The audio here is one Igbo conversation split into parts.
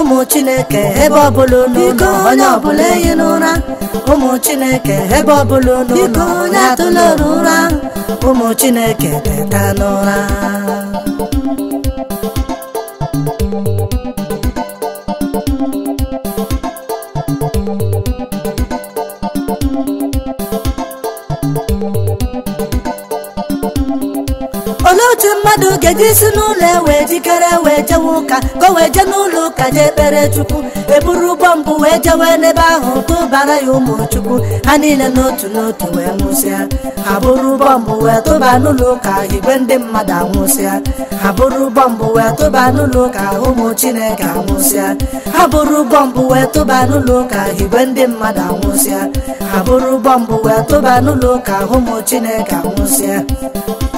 ụmụ chineke ebe ọbụla ụlọ onye ọbụla ehi n'ụra ụmụ chineke ebe ọbụla unu ụlọ onye atụla ụra ụmụ chineke teta n'ụra thank you otu mmadụ ga ejisi isi n'ụlọ ewe jikere wee jewe ụka ka o wee jee n'ụlọ ụka jee kpere chukwu eburu ụgbọ mbụ wee jewe n'ebe ahụ tụbara ya ụmụ chukwu ha niile n'otu n'otu wee nwụsịa ha bụrụ ụgbọ mbụ wee tụba n'ụlọ ụka igwe chineke anwụsịa ha bụrụ ụgbọ wee tụba n'ụlọ ụka igwe chineke anwụsịa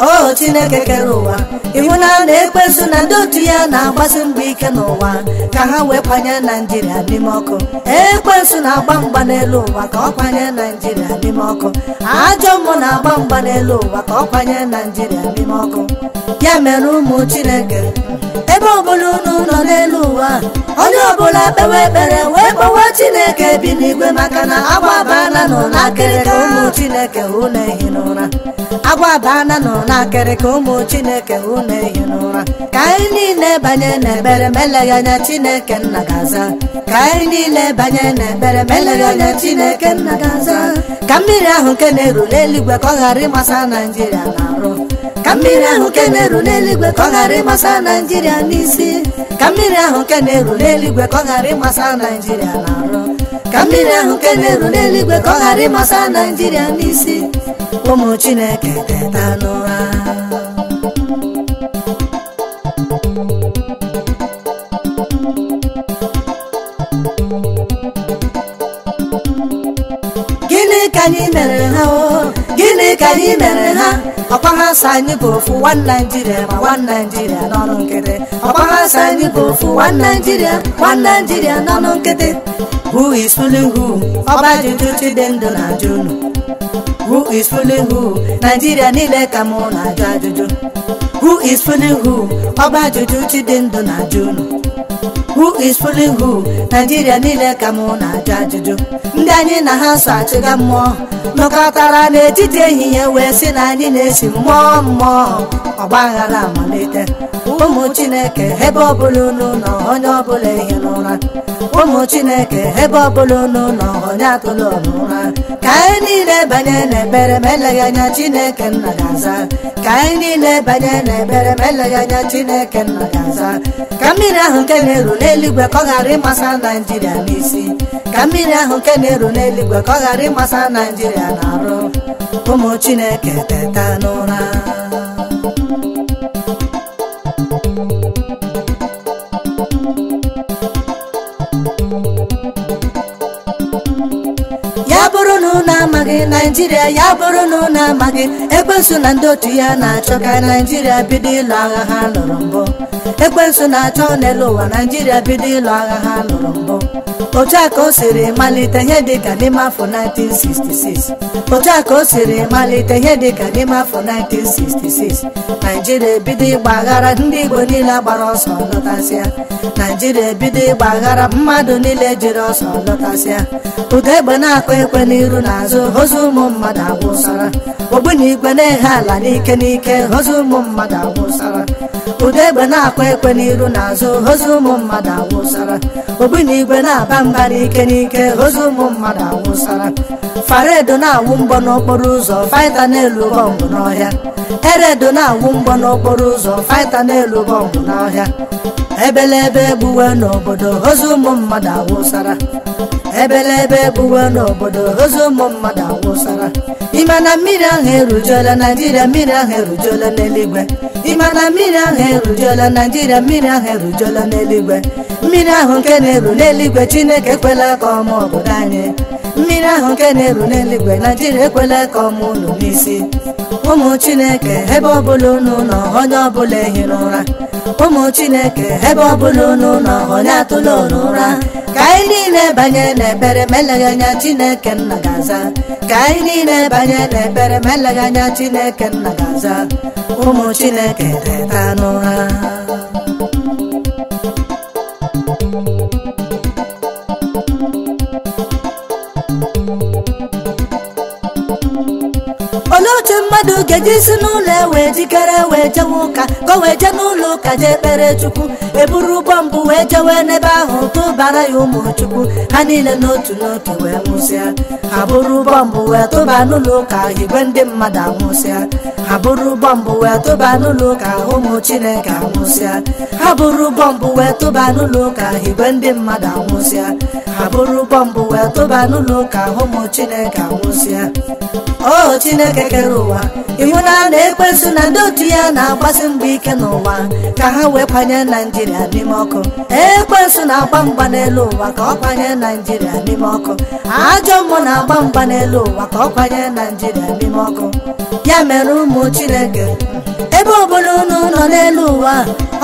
o chineke oh, n'ụwa na-ekpezu na ndị otu ya na-agbasi mgba ike n'ụwa ka ha wee kwanye naijiria n'ime ọkụ ekpezu na-agba mgba n'elu ụwa ka ọ kwanye naijiria n'ime ọkụ ajọ mmụ na-agba mgba n'elu ụwa ka ọ kwanye naijiria n'ime ọkụ ya mere ụmụ chineke ebe ọbụla unu nọ n'elu ụwa onye ọbụla kpewe ekpere wee kpọwa chineke bi n'igwe maka na agbabaala nọ n'akịrịka ụmụ chineke na ehi n'ụra agwa bana nọ ka ụmụ chineke unu ehi n'ụra ka anyị niile banye n'ekpere meleghị anya chineke nna Gaza. ka anyị niile banye n'ekpere meleghị anya chineke nna gaza ka mmiri ahụ nke na-eru n'eluigwe ka ọ ghara ịmasa naijiria na-arụ ka mmiri ahụ nke na-eru n'eluigwe ka ọ ghara n'isi ka mmiri ahụ nke na-eru n'eluigwe ka ọ ghara ịmasa naijiria na-arụ ka mmiri ahụ nke na-eru n'eluigwe ka ọ ghara ịmasa naijiria n'isi ụmụ chineke teta n'ụra gịnị ka anyị mere ha o gịnị ka anyị mere ha ọkwa ha sọ anyị bụ ofu nwa naijiria ma nwa naijiria n'ọrụ nkịtị ọkpọrọsọ anyị bụ ofu one Naijiria one Naijiria n'ọnụ nkịtị who is fooling ọba ajụjụ chidendụ na-ajụ unu who is fooling who niile ka mụ na-ajụ ajụjụ who is fooling ọba ajụjụ chidendụ na-ajụ unu who is fooling who niile ka mụ na-ajụ ajụjụ ndị anyị na ha so achịga mmụọ nọkọtara n'etiti ehihie wee sị na anyị na-esi mmụọ mmụọ ọgbaghara amalite ụmụ chineke ebe ọbụla unu nọ onye ọbụla ehi n'ụra ụmụ chineke ebe ọbụla unu onye atụla n'ụra ka anyị niile banye n'ebere ma eleghị anya chineke nna ga ka ka mmiri ahụ nke na-eru n'eluigwe ka ọ ghara ịmasa naijiria n'isi ka mmiri na-eru n'eluigwe ka ọ ụmụ chineke teta ya bụrụ na ụnụ amaghị naijiria ya bụrụ na ụnụ amaghị ekwensu na ndị otu ya na-achọ ka naijiria bido ịlụ agha ha lụrụ mbụ ekwensu na-achọ n'elu ụwa naijiria bido ịlụ agha ha lụrụ mbụ otu a ka o siri malite ihe dịka n'ime afọ 1966 otu a ka o siri malite ihe n'ime afọ 1966 naijiria ebido ịgba aghara ndị igbo niile gbara ọsọ lụtasịa naijiria ebido ịgba mmadụ niile jiri ọsọ lụtasịa egbe na-akụ na ekwe n'iru na azụ ozu ụmụ mmadụ agwụsara ogbunigwe na-ehe ala n'ike n'ike hozu ụmụ mmadụ agwụsara ụda egbe na-akwa ekwe n'iru na azụ ozu ụmụ mmadụ agwụsara ogbunigwe na-aba mba n'ike n'ike hozu ụmụ mmadụ agwụsara faredo na-awụ mgbọ n'okporo ụzọ faịta n'elu bọmbụ n'ọhịa eredo na-awụ mgbọ n'okporo ụzọ faịta n'elu bọmbụ n'ọhịa ebelebe egbuwe n'obodo hozu ụmụ mmadụ awụsara Ebele ebe bụwa n'obodo ozu ụmụ mmadụ awụsara ịma na mmiri ahụ naijiria mmiri ahụ na mmiri ahụ erujuola naijiria mmiri ahụ erujuola n'eluigwe mmiri ahụ nke na-eru n'eluigwe chineke ekwela ka ọma obodo anyị mmiri ahụ nke na-eru n'eluigwe naijiria ekwela ka ọmụ unu n'isi ụmụ chineke ebe ọbụla unu nọ onye ọbụla ehi n'ụra ụmụ chineke ebe ọbụla unu nọ onye atụla unu ka anyị niile banye n'ekpere ma anya chineke nna gaza ka anyị niile banye n'ekpere ma anya chineke nna ga ụmụ chineke teta n'ụra ogeji si n'ụlọ ewee jikere wee jewe ụka ka o wee jee n'ụlọ ụka jee kpere chukwu eburu ụgbọ mbụ wee jewe n'ebe ahụ tụbara ya ụmụ chukwu ha niile n'otu n'otu wee nwụsịa ha bụrụ ụgbọ mbụ wee tụba n'ụlọ ụka igwe ndị mmadụ anwụsịa ha bụrụ ụgbọ mbụ wee tụba n'ụlọ ụka ụmụ chineke anwụsịa ha bụrụ ụgbọ mbụ wee tụba n'ụlọ ụka igwe ndị mmadụ anwụsịa ha bụrụ ụgbọ mbụ wee tụba n'ụlọ ụka ụmụ chineke anwụsịa ọ oh, chineke kere ụwa ịhụna na ekwensu na ndị otu ya na-agbasi mgbe ike n'ụwa ka ha wee kwanye naijiria n'ime ọkụ ekwensu na-agba mgba n'elu ụwa ka ọ kwanye naijiria n'ime ọkụ ajọ mmụọ na-agba mgba n'elu ụwa ka ọ kwanye naijiria n'ime ọkụ ya mere ụmụ chineke ebe ọbụla unu nọ n'elu ụwa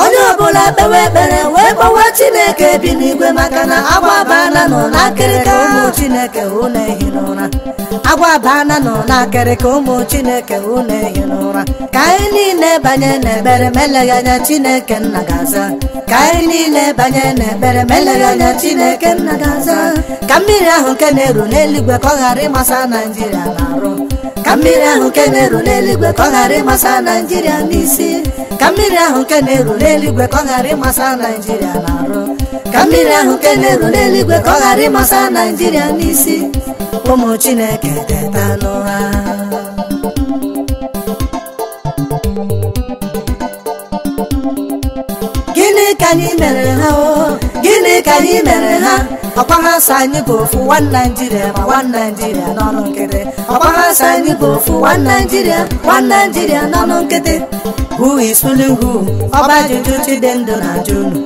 onye ọbụla kpewe ekpere wee gbawa chineke bi n'igwe maka na agwa abana nọ n'akịrịka ụmụ chineke unu ehi n'ụra agwa abana nọ n'akịrịka ụmụ chineke unu ehi n'ụra ka anyị niile banye n'ekpere ma eleghị anya chineke nna ga ka anyị niile banye n'ekpere ma eleghị anya chineke nna ga ka mmiri ahụ nke na-eru n'eluigwe ka ọ ghara ịmasa naijiria na arụ ka mmiri ahụ nke na-eru n'eluigwe ka ọ ghara ịmasa naijiria naijiria n'isi ka mmiri ahụ nke na-eru n'eluigwe ka ọ ghara ịmasa naijiria na arụ ka mmiri ahụ nke na-eru n'eluigwe ka ọ ghara ịmasa naijiria n'isi ụmụ chineke teta ha gịnị ka anyị mere ha o oh? dịka anyị mere ha ọkwa ha sa anyị bụ ofu nwa naijiria ma nwa naijiria n'ọnụ nkịtị ọkwa ha sa anyị bụ ofu nwa naijiria nwa naijiria n'ọnụ nkịtị who is fooling who ọba ajụjụ chidendụ na ajụ unu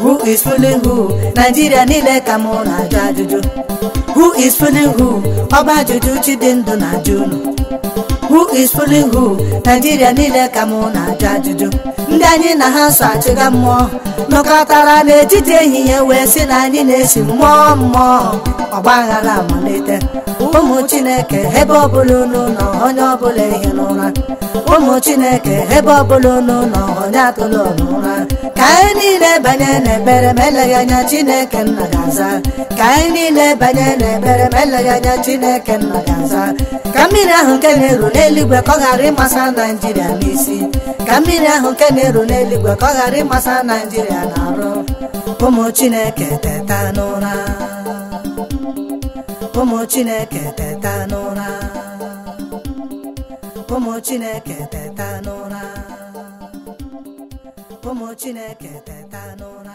Who is fooling who? Nigeria niile ka m na-ajụ ajụjụ Who is fooling who? Ọba ajụjụ Chidindu na ajụ unu Who is fooling who? Nigeria niile ka m na-ajụ ajụjụ ndị anyị na ha so achịga mmụọ nọkọtara n'etiti ehihie wee sị na anyị na-esi mmụọ mmụọ ọgbaghara amalite ụmụ chineke ebe ọbụla unu nọ onye ọbụla ehi n'ụra ụmụ chineke ebe ọbụla unu nọ onye atụla n'ụra ka anyị niile banye n'ekpere ma eleghị anya chineke nna ga-aza ka anyị niile banye n'ekpere ma eleghị anya chineke nna ga-aza ka mmiri ahụ nke na-eru n'eluigwe ka ọ ghara ịmasa naijiria n'isi ka mmiri ahụ nke na-eru n'eluigwe ka ọ ghara ịmasa naijiria na-arụ ụmụ chineke teta n'ụra ụmụ chineke teta n'ụra ụmụ chineke teta n'ụra 友ちねけてたのな